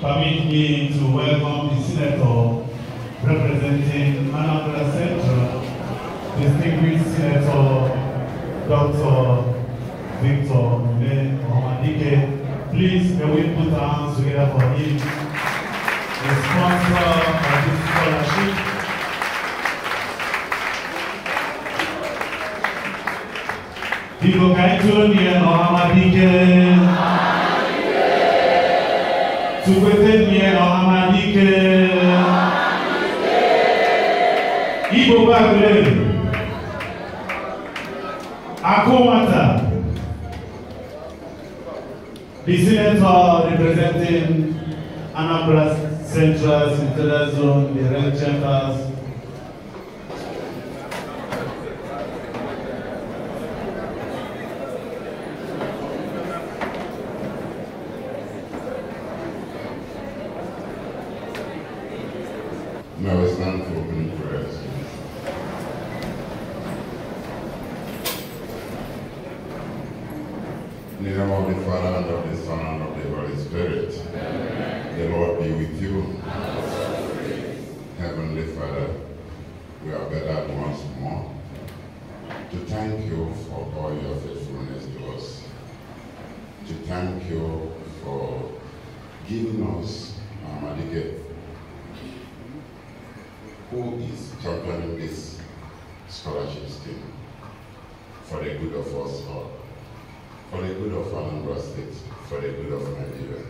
permit me to welcome the Senator representing Manabra Central, distinguished Senator Dr. Victor Mune Omadike. Please, may we put our hands together for him, the sponsor of this scholarship. People, can you turn tukwetenie ọhamadike igbo gbagre akụ nwata the senator representing anambra central central zone the red chambers Now it's time for opening prayers. In the name of the Father, and of the Son, and of the Holy Spirit. Amen. The Lord be with you. Heavenly Father, we are gathered once more to thank you for all your faithfulness to us, to thank you for giving us from Anambra for the good of Nigeria.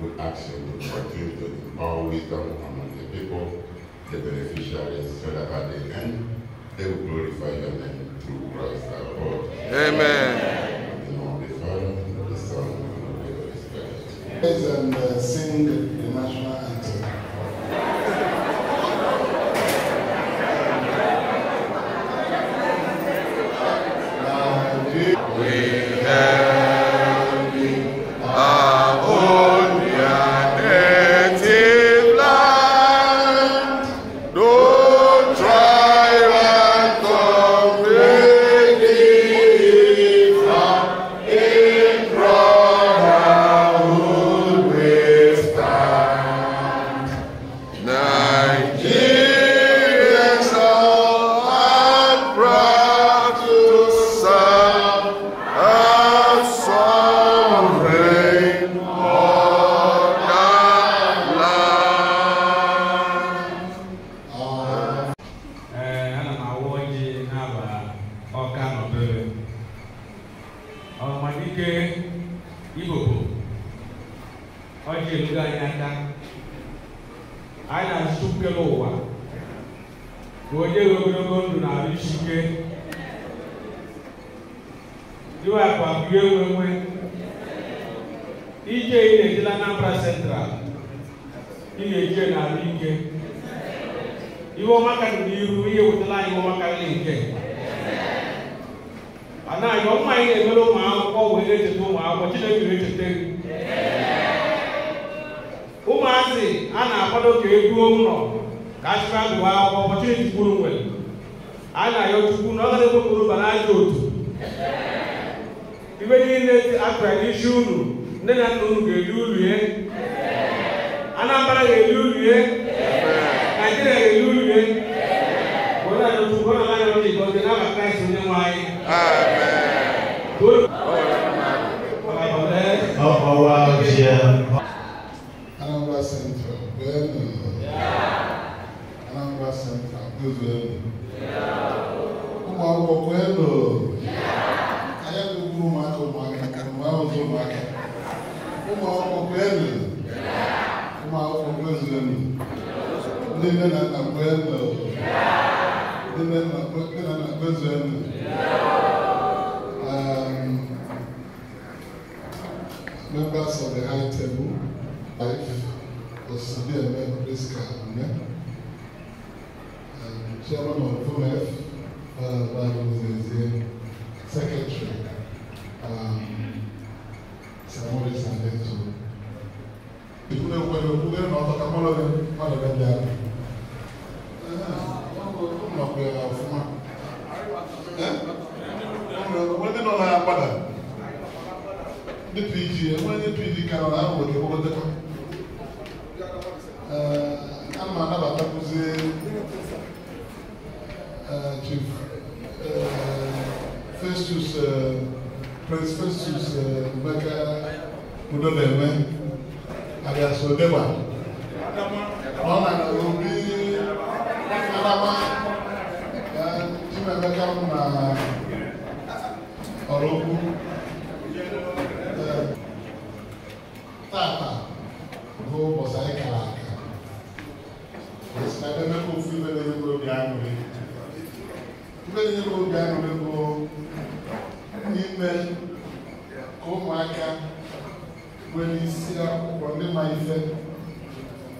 Good action, good practice, good power, wisdom among the people, the beneficiaries, so that at the end, they will glorify your name through Christ our Lord. Amen. In the name of the Father, the Son, and the Holy Spirit. Praise and uh, sing the national anthem. iwepụ abụghị enwenwe ije ị na-ejela Anambra Central ị na-eje n'ala ike iwe ọma karịrị n'ihu ihe wetala anyị iwe ọma karịrị nke anaghị ọma anyị na-emere ụmụ akwụkwọ wee na-echeta ụmụ akwụkwọ Chineke na-echeta ụmụazị a na-akwado ka eruo ụlọ ka achịkwa agụụ akwụkwọ ụbọchị ejikwuru nwere a na-ayọ chukwu na ọ ga-ekwe kpụrụ bara ajọ otu iwe niile akpara n'isi unu nne na nna unu ga-eli ulie anambra ga-eli ulie naijiria ga-eli ulie onye a n'otu ụgbọ na nanyị ndị igbo ndị n'aba kraịst onye nwe anyị Anambra Central, Benue. Anambra Central, Benue. Ụmụ akwụkwọ Benue ụmụaka ụmụaka ụmụakwụkwọ ụmụaka ụmụakwụkwọ kwelu ụmụakwụkwọ kwelu elu ndị nne na nna kwelu ndị nne na nna kwezu elu members of the high table life osidi eme priska mme chairman of F, uh, by Moses, Second. Samuel is an People don't want to go there, not a Kamala, not mudole enwe aliasodewa ọ na-arụ obi adama chimemeka mụ na ọrụ okwu eh, tata bụ ụbọchị anyị e kara aka na emeka ofu ibe na-enyere obi aṅụrị ibe na-enyere obi aṅụrị bụ ime ka ụmụaka nwere isi akwụkwọ ndị ma ife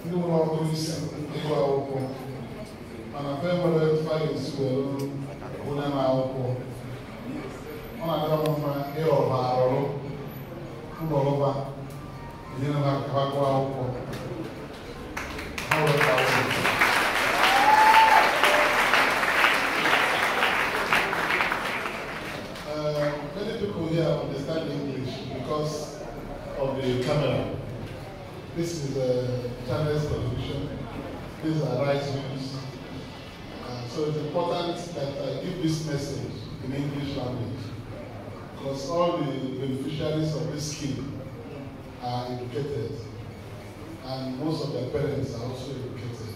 ndị nwere ọkụ isi ịgụ akwụkwọ mana fe nwere fayos were onye na akwụkwọ ọ na-adị mma ịrọba arụrụ ụlọrụba enyere ha ka ha gụọ akwụkwọ ha weta akwụkwọ This is the Chinese confusion. These are rice meals. Uh, so it's important that I give this message in English language because all the beneficiaries of this scheme are educated and most of their parents are also educated.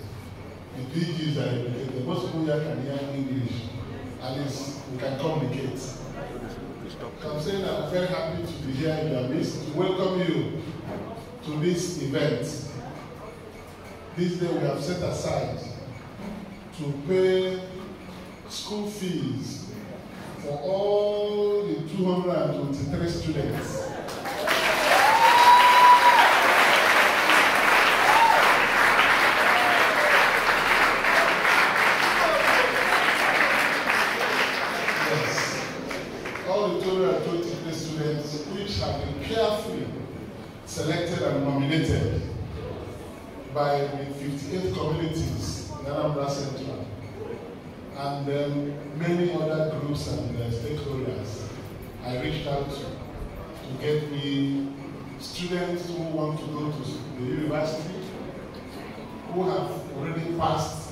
The PGs are educated. Most people here can hear English. At least we can communicate. I'm saying I'm very happy to be here in your midst to welcome you to this event. This day we have set aside to pay school fees for all the 223 students and then um, many other groups and uh, stakeholders I reached out to to get me students who want to go to the university, who have already passed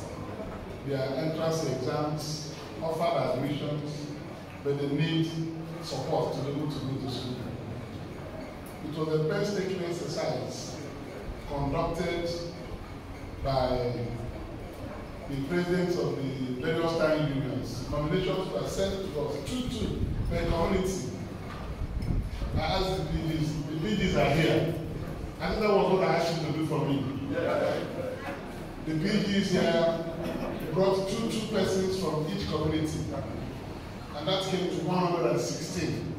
their entrance exams, offered admissions, but they need support to be able to go to school. It was a painstaking exercise conducted by the presidents of the various time unions. Nominations were sent to us, two, two, per community. I asked the leaders, the leaders are here. I think that was what I asked them to do for me. The BGS here brought two, two persons from each community. And that came to 116.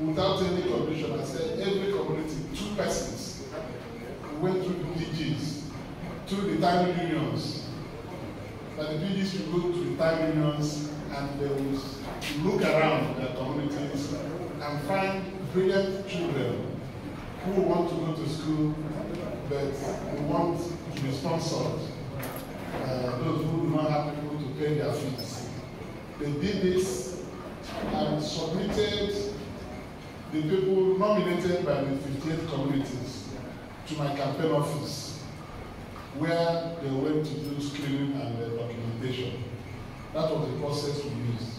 Without any condition, I said every community, two persons. We went through the BGS to retirement unions. but the PG should go to retirement unions and they will look around their communities and find brilliant children who want to go to school but who want to be sponsored. Uh, those who do not have people to pay their fees. They did this and submitted the people nominated by the 58 communities to my campaign office. where they went to do screening and uh, documentation. That was the process we used.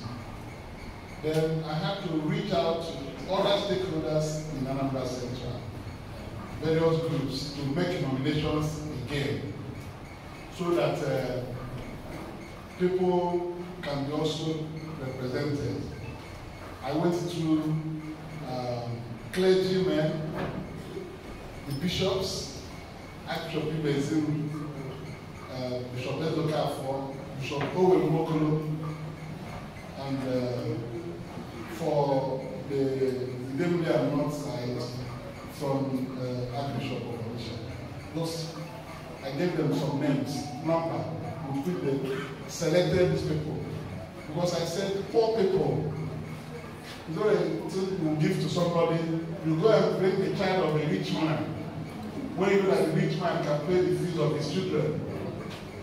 Then I had to reach out to other stakeholders in Anambra Central, various groups, to make nominations again, so that uh, people can be also represented. I went to um, clergymen, the bishops, Archbishop Ibezin, uh, Bishop Ezokafo, Bishop Owen Mokolo, and uh, for the, the deputy and north side from uh, Archbishop of Orisha. Those, I gave them some names, number, with the selected these people. Because I said, four people, you know, you give to somebody, you go and bring the child of a rich man when even a rich man can pay the fees of his children.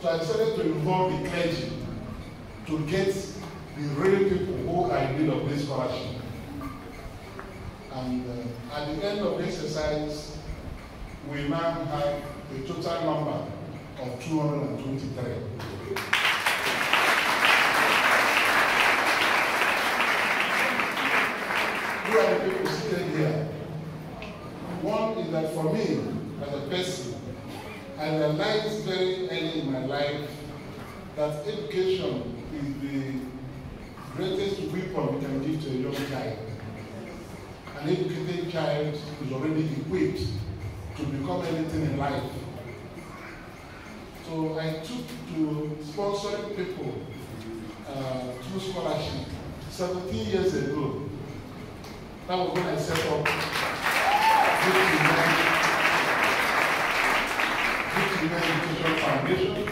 So I decided to involve the clergy to get the real people who are in need of this scholarship. And uh, at the end of the exercise, we now have a total number of 223. Who are the people seated here? One is that for me, as a person. I realized very early in my life that education is the greatest weapon we can give to a young child. An educated child is already equipped to become anything in life. So I took to sponsoring people uh, through scholarship 17 years ago. That was when I set up Foundation.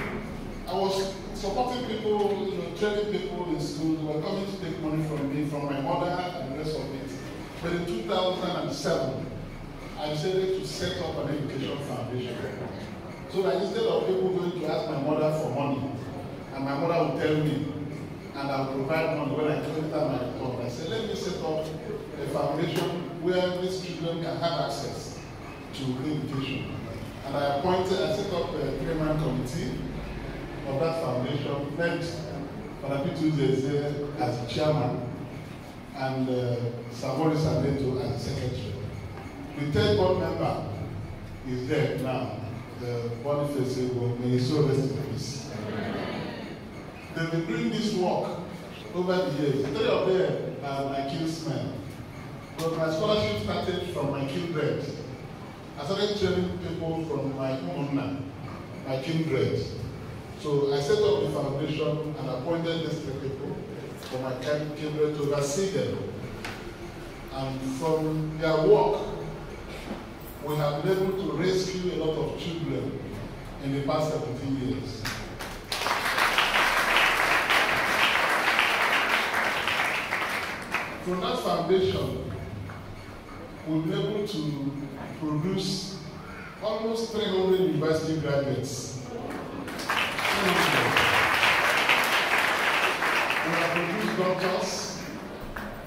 I was supporting people, you know, training people in school who were coming to take money from me, from my mother and the rest of it. But in 2007, I decided to set up an education foundation. So that instead of people going to ask my mother for money, and my mother would tell me, and I'll provide money when I collect my report. I said, let me set up a foundation where these children can have access to education. and I appointed, I set up a uh, three-man committee of that foundation, met Falapi Tuesday as chairman and uh, Savori Sabeto as secretary. The third board member is there now, the Boniface Ego, may his soul rest in peace. They've been doing this work over the years. Three of them are my kinsmen. But my scholarship started from my kindred. I started training people from my own, uh, my kindred. So I set up the foundation and appointed these three people for my kindred to oversee them. And from their work, we have been able to rescue a lot of children in the past 17 years. From that foundation, will be able to produce almost 300 university graduates. we have produced doctors,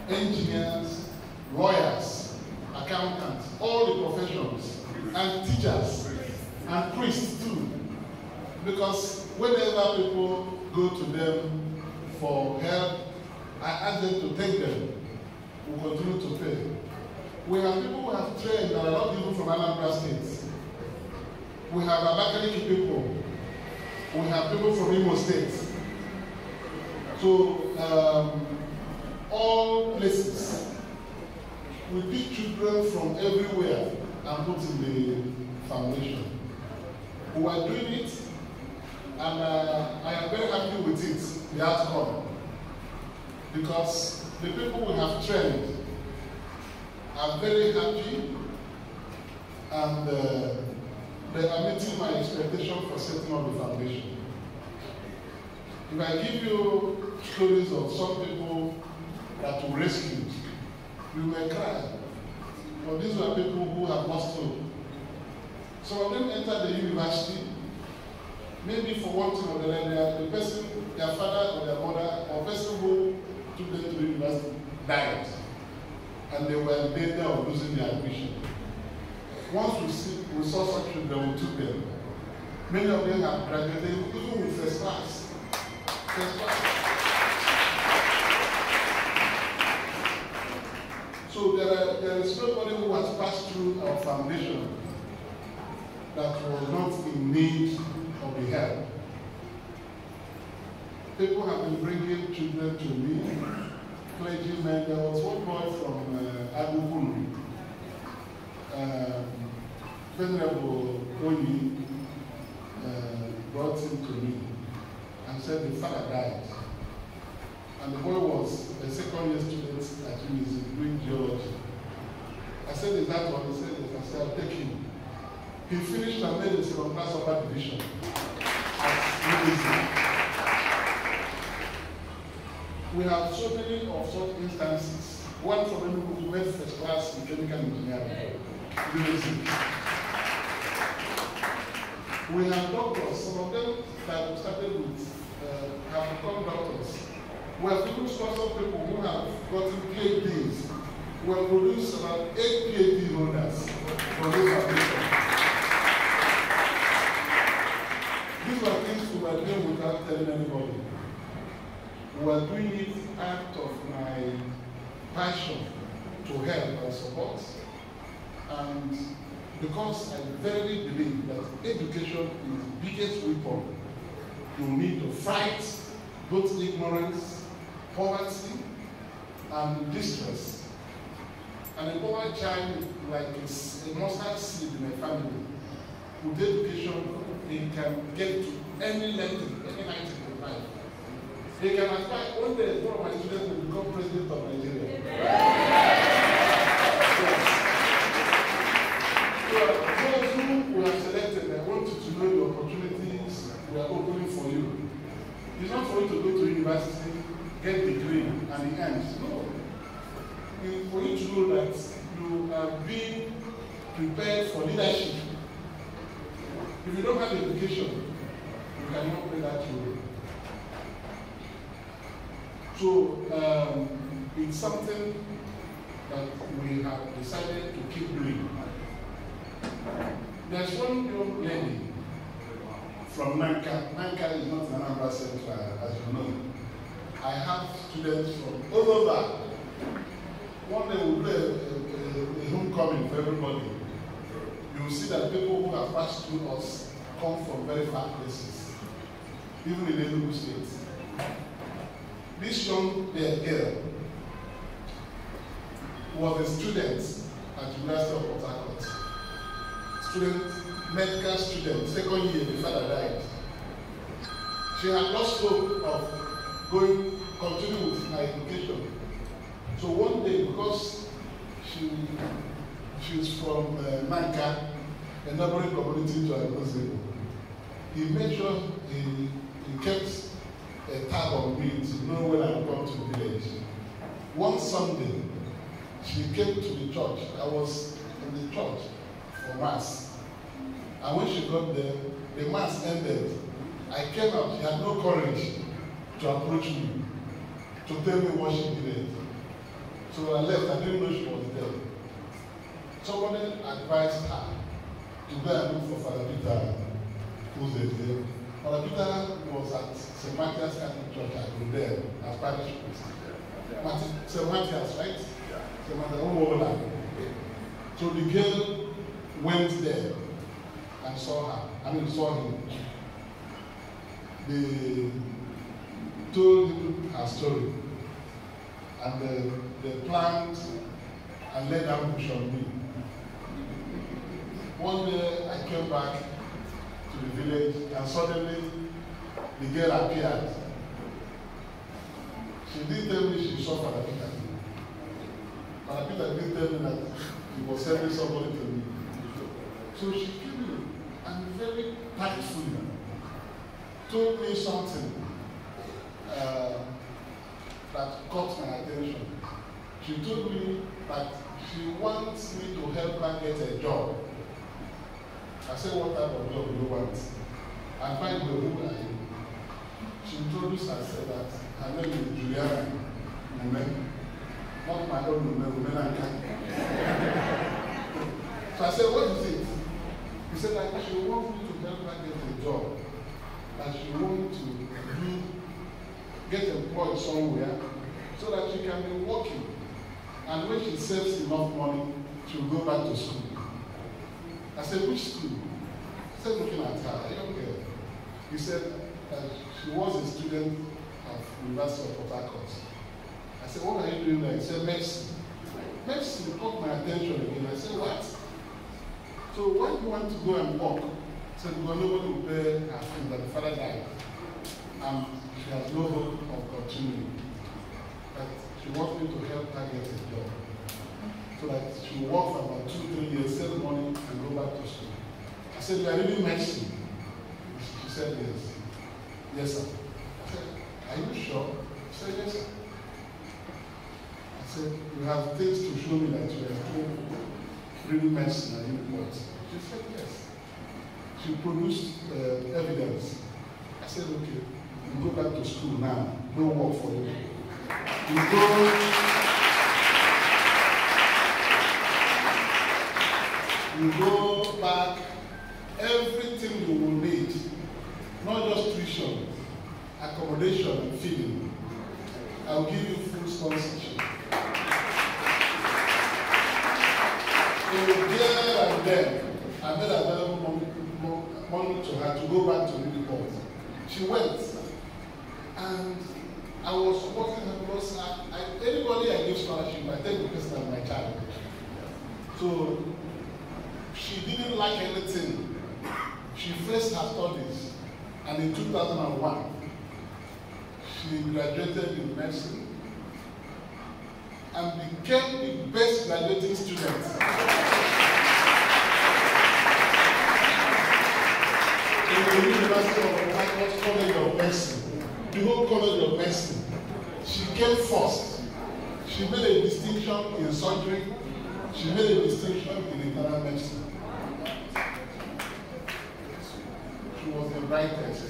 engineers, lawyers, accountants, all the professions, and teachers, and priests too. Because whenever people go to them for help, I ask them to take them. We continue to pay. We have people who have trained that are not even from Anambra State. We have Abakaliki people. We have people from Imo State. So, um, all places. We pick children from everywhere and put in the foundation. We are doing it, and uh, I am very happy with it, the outcome. Because the people we have trained I'm very happy and uh, they are meeting my expectation for setting up the foundation. If I give you stories of some people that were rescued, you may cry. But these were people who have lost hope. Some of them entered the university, maybe for one thing or the other, the person, their father or their mother, or person who took them to the university died. and they were in danger of losing their admission. Once we, see, saw such children, we took them. Many of them have graduated even with first class. First class. So there, are, there is nobody who has passed through our foundation that was not in need of the help. People have been bringing children to me clergymen, there was one boy from uh, Agugunri, um, Venerable Oni uh, brought him to me and said the father died. And the boy was a second year student at UNIS doing geology. I said, Is that what he said? Yes, I said, I'll take him. He finished and made his second class upper division at UNIS. we have so many of such instances. One from them who went first class in chemical engineering. We have doctors, some of them that started with uh, have become doctors. We have produced lots of people who have gotten PhDs. We have produced about eight PhD holders for this application. These are things we were doing without telling anybody. were doing it out of my passion to help and support. And because I verily believe that education is the biggest weapon you need to fight both ignorance, poverty, and distress. And a poor child, like a, a mustard seed in a family, with education, he can get to any level, any height. They can aspire, one day, one of my students will become president of students at University of Port Harcourt. Student, medical student, second year, the father died. She had lost hope of going, continuing with her education. So one day, because she, she was from uh, Manka, a neighboring community to Agozebo, he made sure he, he kept a tab on me to know when I come to village. One Sunday, she came to the church. I was in the church for mass. And when she got there, the mass ended. I came out. She had no courage to approach me, to tell me what she needed. So I left. I didn't know she was there. Somebody advised her to go and look for Father Peter, who's there. Father Peter was at St. Matthew's Catholic Church. I was there as parish priest. St. Matthew's, right? They might have overlap. So the girl went there and saw her. I mean, saw him. They told him her story. And the they planned and laid ambush on me. One day I came back to the village and suddenly the girl appeared. She didn't tell me she saw Father Peter. And Peter didn't tell me that he was sending somebody to me. So she came in and very tactfully told me something uh, that caught my attention. She told me that she wants me to help her get a job. I said, what type of job do you want? I find the who She introduced herself that her name is Juliana Mumen. Not my own women, women I can. so I said, what is it? He said that she wants me to help her get a job. That she wants to do, get employed somewhere so that she can be working. And when she saves enough money, she'll go back to school. I said, which school? I said, looking at her, a young girl. He said that she was a student at University of Port Harcourt. I said, what are you doing there? He said, mercy. Mercy caught my attention again. I said, what? So why do you want to go and walk, he said, because nobody will bear her sin that the father died. And she has no hope of continuing. But she wants me to help her get a job. So that she will work for about two, three years, save money, and go back to school. I said, you are really mercy. She said, yes. Yes, sir. I said, are you sure? She said, yes, sir said, you have things to show me that you are reading medicine and you what? She said, yes. She produced uh, evidence. I said, okay, you go back to school now. No work for you. You go. You go back everything you will need, not just tuition, accommodation feeding. I'll give you full sponsorship. I made available money, money to her to go back to Newport. She went, and I was supporting her because I, I, anybody I give scholarship, I take the person as my child. So she didn't like anything. She faced her studies, and in 2001, she graduated in medicine and became the best graduating student. in the University of Michael's College of Medicine, the whole College of Medicine. She came first. She made a distinction in surgery. She made a distinction in internal medicine. She was the brightest.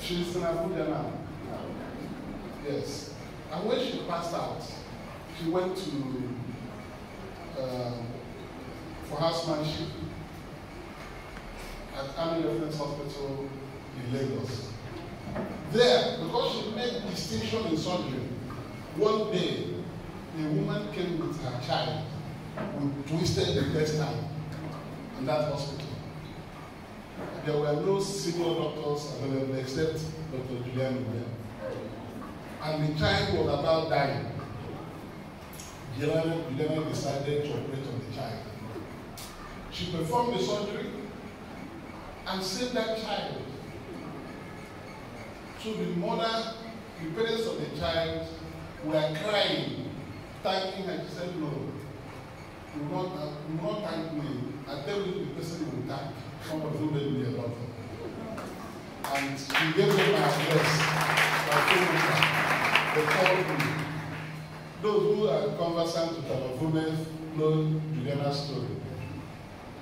She's in Abuja now. Yes. And when she passed out, she went to um, for housemanship at Army Reference Hospital in Lagos. There, because she made distinction in surgery, one day a woman came with her child who twisted the intestine in that hospital. There were no senior doctors available except Dr. Julian Nguyen. And the child was about dying. Juliana decided to operate on the child. She performed the surgery and save that child. So the mother, the parents of the child were crying, thanking her. She said, Lord, you not, you not thank me. I tell you the person you will thank. Somebody who made me a lot. And she gave me my address. I told her, they called me. Those who are conversant with our women know Juliana's story.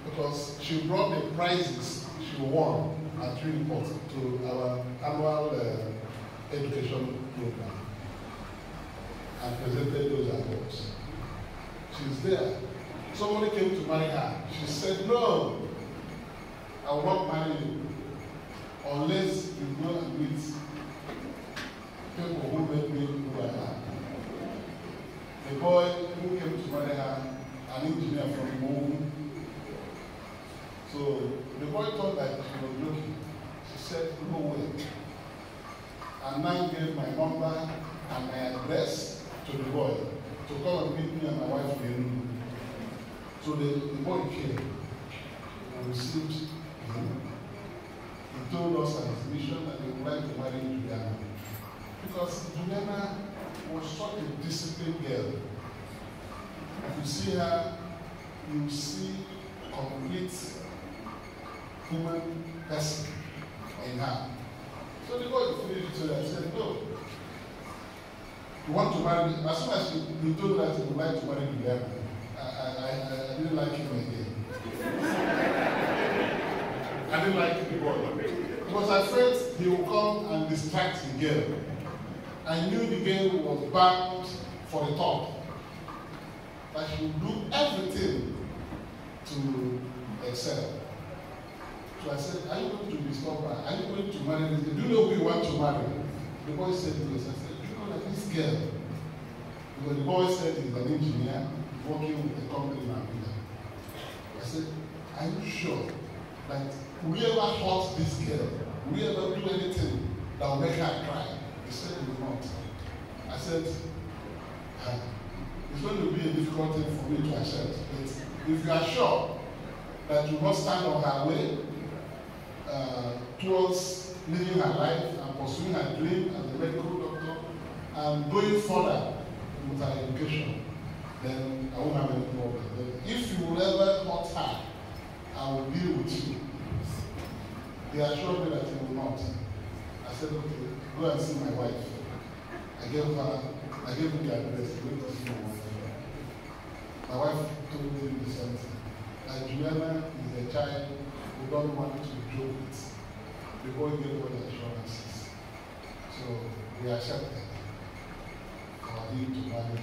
Because she brought the prizes to one at three to our annual uh, education program and presented those awards. She's there. Somebody came to marry her. She said, No, I will not marry you unless you go and meet people who make me who I am. The boy who came to marry her, an engineer from home, So the boy thought that she was looking. She said, no way. A man gave my number and my address to the boy to come and meet me and my wife in So the, the boy came and received him. He told us that his mission that he would like to marry Juliana. Because Juliana was such a disciplined girl. If you see her, you see complete human person in her. So the boy finished it. So I said, No. You want to marry me? As soon as you, you told that you would like to marry me, I, I, I, I didn't like him again. I didn't like the boy. Because I felt he would come and distract the girl. I knew the girl was bound for the top. That she would do everything to excel to accept, are you going to be stubborn? Are you going to marry this girl? Do you know who you want to marry? The boy said to us, I said, do you know that this girl, because the boy said he's an engineer working with a company in Abuja. I said, are you sure that whoever hurt this girl, whoever do anything that will make her cry? He said, he not. I said, ah, it's going to be a difficult thing for me to accept, but if you are sure that you must stand on her way, uh, towards living her life and pursuing her dream as a medical doctor and going further with her education, then I won't have any problem. But if you will ever hurt her, I will deal with you. They assured me that you will not. I said, okay, go and see my wife. I gave her, I gave her the address, go to see my wife. My wife told me the same thing. That Juliana is a child they don't want to do it. People give all the assurances. So we accept accepted according to marriage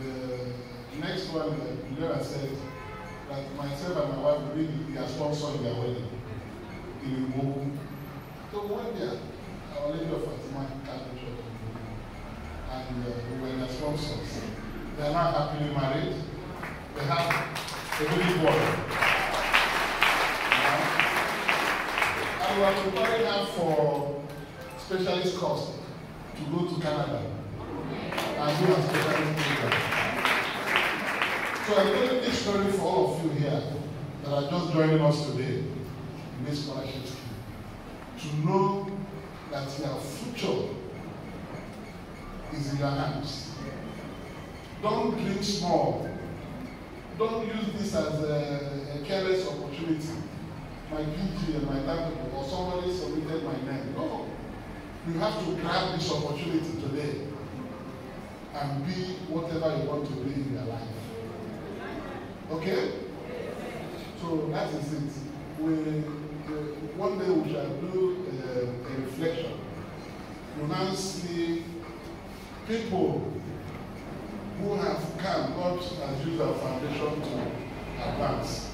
them. The next one that Lera said that myself and my wife really they are sponsoring their wedding. They will move. So one day our lady of Fatima Catholic Church and uh, we were their sponsors. They are now happily married. They have a baby boy. We are preparing her for specialist course to go to Canada as a specialist program. So I'm telling this story for all of you here that are just joining us today in this scholarship scheme. To know that your future is in your hands. Don't dream small. Don't use this as a, a careless opportunity. my PG and my timetable or somebody submitted my name. No. You have to grab this opportunity today and be whatever you want to be in your life. Okay? So that is it. We, uh, one day we shall do uh, a reflection. You now see people who have come, God has used our foundation to advance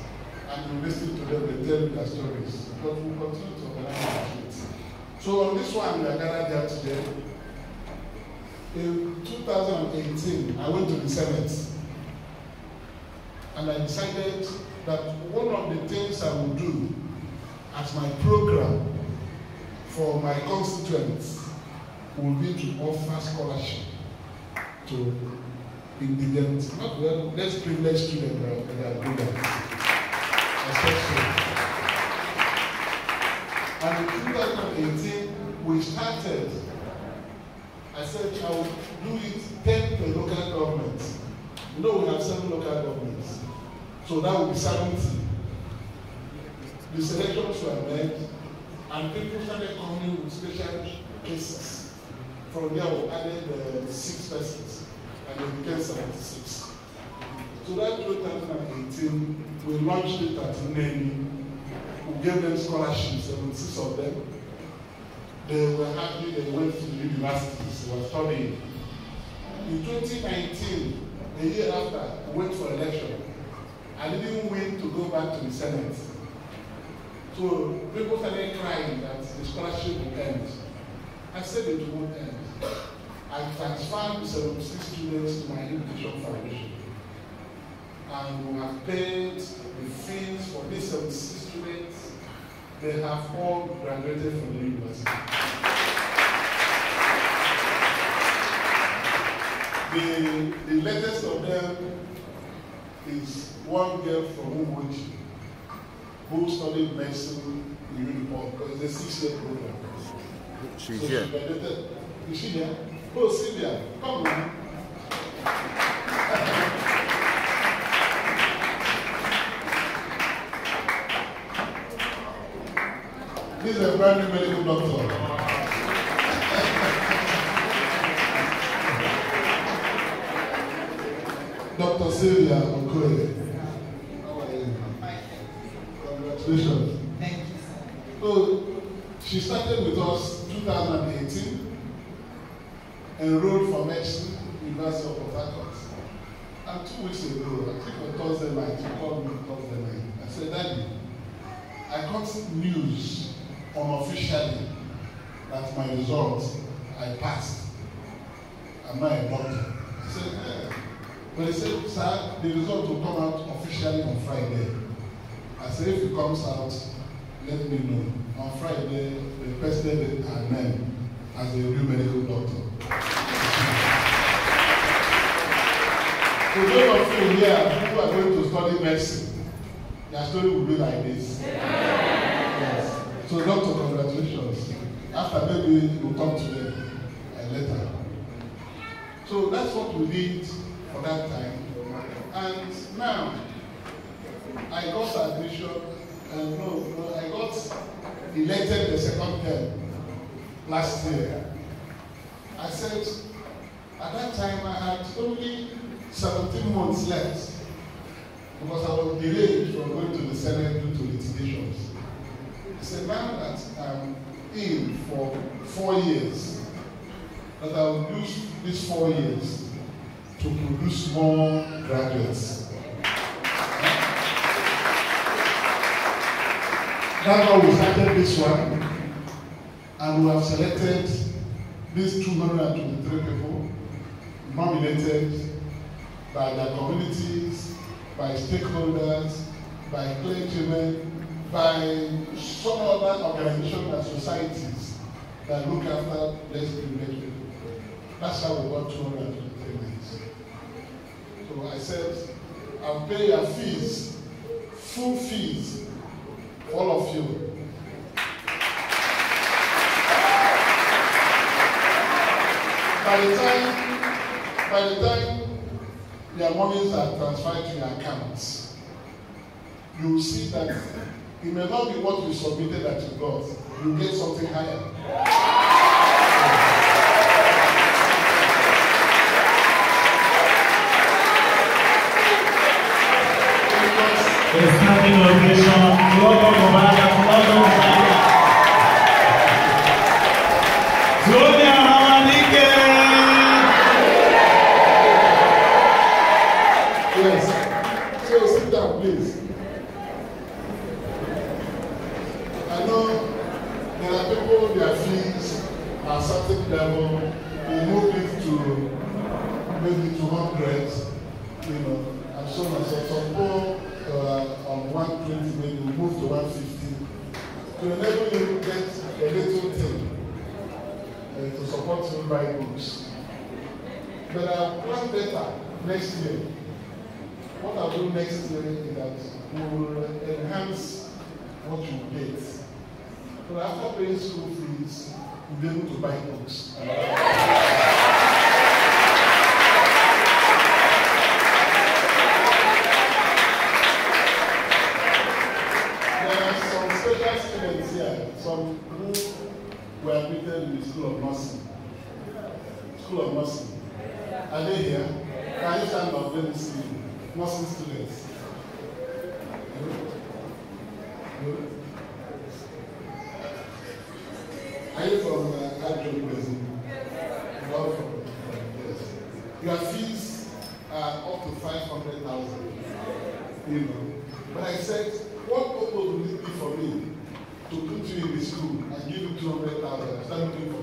the stories, but we continue to organize it. So on this one, we are gathered here today. In 2018, I went to the Senate, and I decided that one of the things I would do as my program for my constituents will be to offer scholarship to indigent, not well, less privileged students that are good Especially. And in 2018, we started, I said, I will do it 10 per local government. You know, we have seven local governments. So that will be 70. The selections were made, and people started coming with special cases. From there, we added uh, six persons, and it became 76. So that 2018, we launched it at Nene who gave them scholarships, 76 of them. They were happy they went to the universities, they were studying. In 2019, the year after, I went for election. I didn't win to go back to the Senate. So people started crying that the scholarship would end. I said it won't end. I transferred 76 students to my education foundation. And we have paid the fees for these 76 students, they have all graduated from the university. The, the latest of them is one girl from Uwoji who studied medicine in Uniport because it's a six-year program. She's so here. She graduated. Is she there? Oh, Sylvia, come on. veterinary medical doctor. Dr. Sylvia Okoye. Congratulations. Thank you, So, she started with us 2018, enrolled for medicine, University of Port And two weeks ago, I think on Thursday night, she called me Thursday night. I said, Daddy, I got news unofficially that my result I passed. I'm not a doctor. I said, yeah. But he said, sir, the result will come out officially on Friday. I said, if it comes out, let me know. On Friday, the president her name as a new medical doctor. For those of you here who are going to study medicine, your story will be like this. Yes. So, doctor, congratulations. After maybe we'll talk to them uh, later. So that's what we did for that time. And now, I got admission, uh, no, no, I got elected the second term last year. I said, at that time I had only 17 months left because I was delayed from going to the Senate due to litigations. It's a man that I'm in for four years. That I will use these four years to produce more graduates. That's why we started this one, and we have selected these 223 people nominated by their communities, by stakeholders, by clergymen, by some other organizations and societies that look after less privileged people. That's how we got 223 millions. So I said, I'll pay your fees, full fees, all of you. by the time by the time their monies are transferred to your accounts you see that It may not be what you submitted that you got. You get something higher. It's coming location. Welcome, Obama. Welcome, Obama. know there are people, their fees are certain level, they move it to maybe 200, you know, and so on. So some people uh, on 120 maybe move to 150 to enable you to get a little thing uh, to support you buy books. But I uh, plan better next year. What I'll do next year is that we will enhance what you get. But after paying school fees, we'll be able to buy books. there are some special students here, some who were admitted in the School of Nursing. School of Nursing. Are they here? Can you stand up? Let me see Nursing students. Your fees are up to 500,000. You know. But I said, what purpose would it be for me to put you in the school and give you 200,000? for